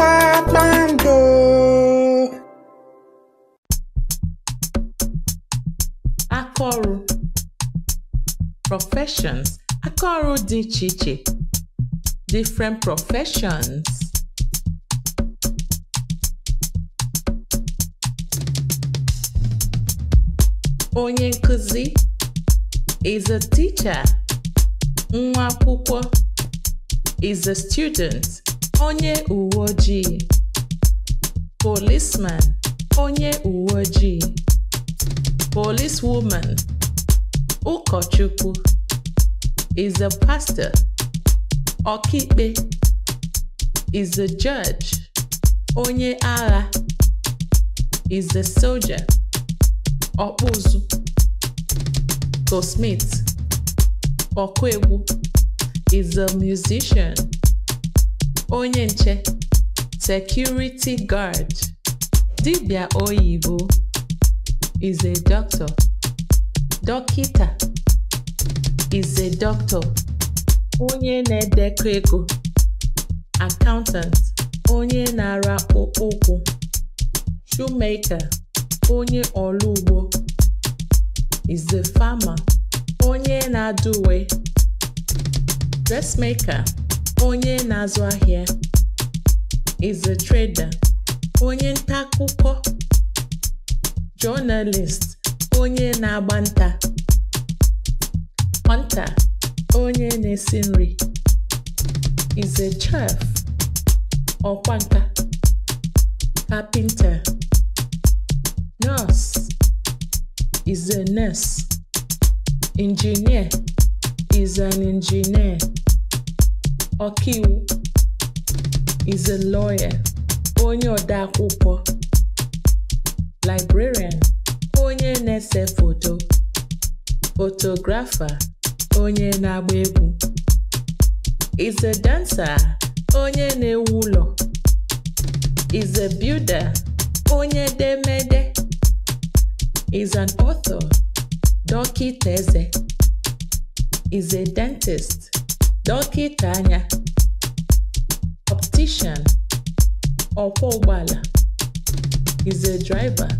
Babando. Professions Akọrụ dị iche iche Different professions Onye nkuzi is a teacher. Nwa akwụkwọ is a student onye uwe ojii policeman onye uwe ojii policewoman ụkọchukwu is a pastor ọkaikpe is a judge onye agha is a soldier ọkpụzụ Smith ọkụ is a musician onye nche security guard Dibia oyibo is a doctor dọkịta is a doctor onye na-edekọ ego accountant onye na-ara ụkwụ shoemaker onye ọlụ ugbo is a farmer onye na-adụ uwe dressmaker onye na-azụ ahịa is a trader onye nta akụkọ journalist onye na-agba nta hunter onye na-esi nri is a chef ọkwa nka carpenter nurse is a nurse engineer is an engineer ọkaiwu is a lawyer onye ode akwụkwọ librarian onye na-ese foto photographer onye na-agba egwu is a dancer onye na-ewu ụlọ is a builder onye demede is an author dọkịta eze is a dentist dọkịta anya optician ọkwọ ụgbọala is a driver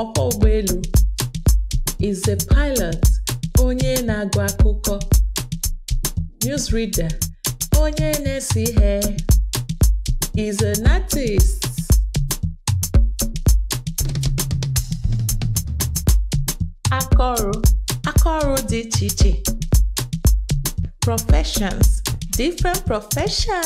ọkwọ ụgbọelu is a pilot onye na-agụ akụkọ newsreader onye na-ese ihe is a artist akọrụ akọrụ dị iche iche professions, different professions.